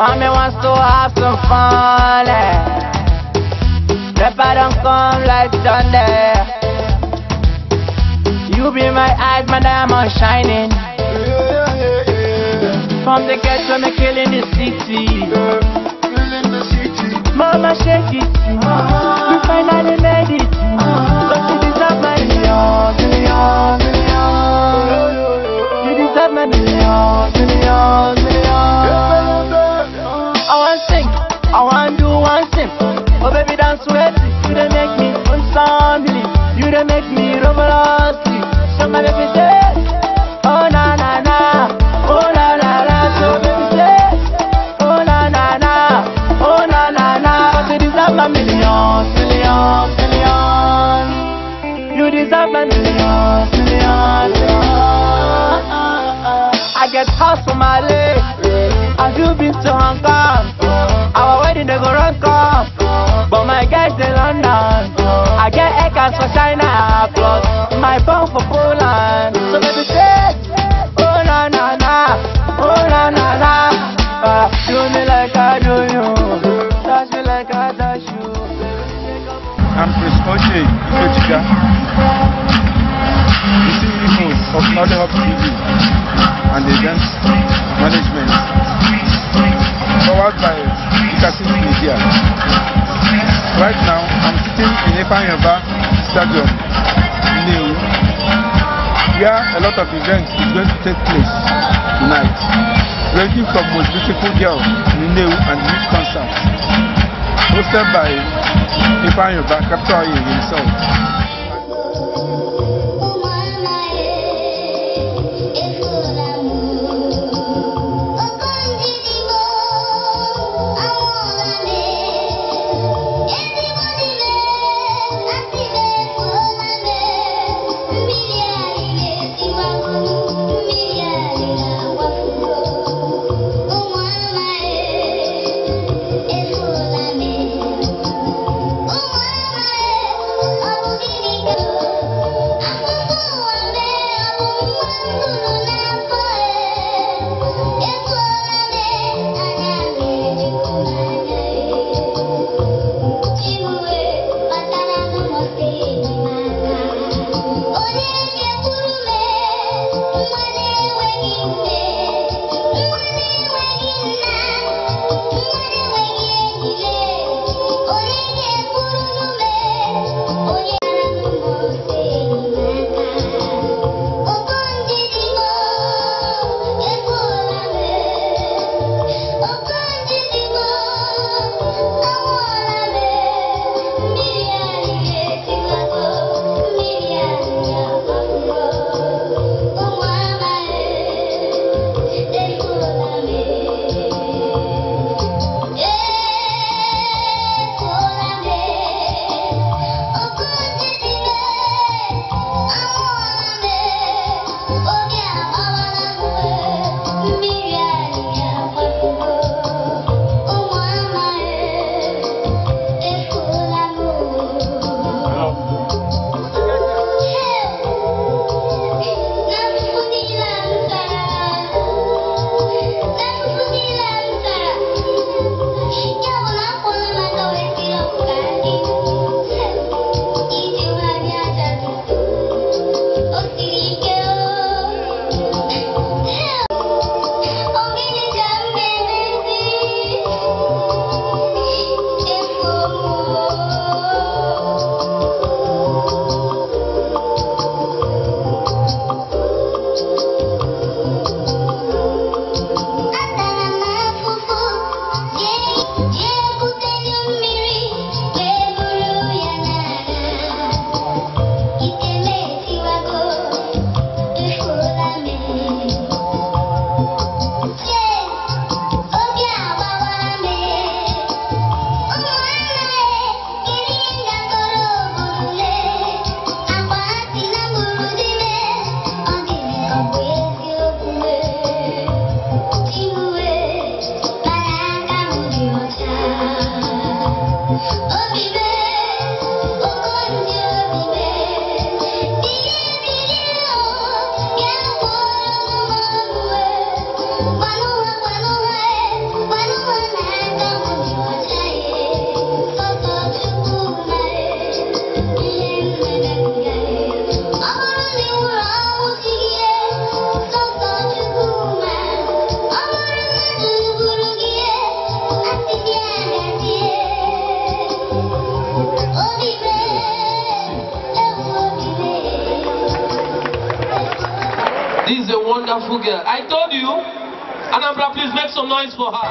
Mommy wants to have some fun. Eh? Pepper don't come like thunder. You be my eyes, my diamond shining. From the ghetto, me killing the city. Mama shake it. seven. I get house for my leg. Have you been to Hong Kong? Our wedding they go run come. But my guys in London. I get acres for China. Plus my pound for Poland. So baby say, oh na na na, oh na na na. Uh, ah, do me like I do. I'm Chris Oche Ikechika. The CEO of Mother Hub TV and the events management. Powered by Ikasis Media. Right now, I'm sitting in Epan Stadium in New, where a lot of events is going to take place tonight, ranging from most beautiful girl, New and youth concerts hosted by Ifanyoba, capital himself. wonderful girl. I told you. Anambra, please make some noise for her.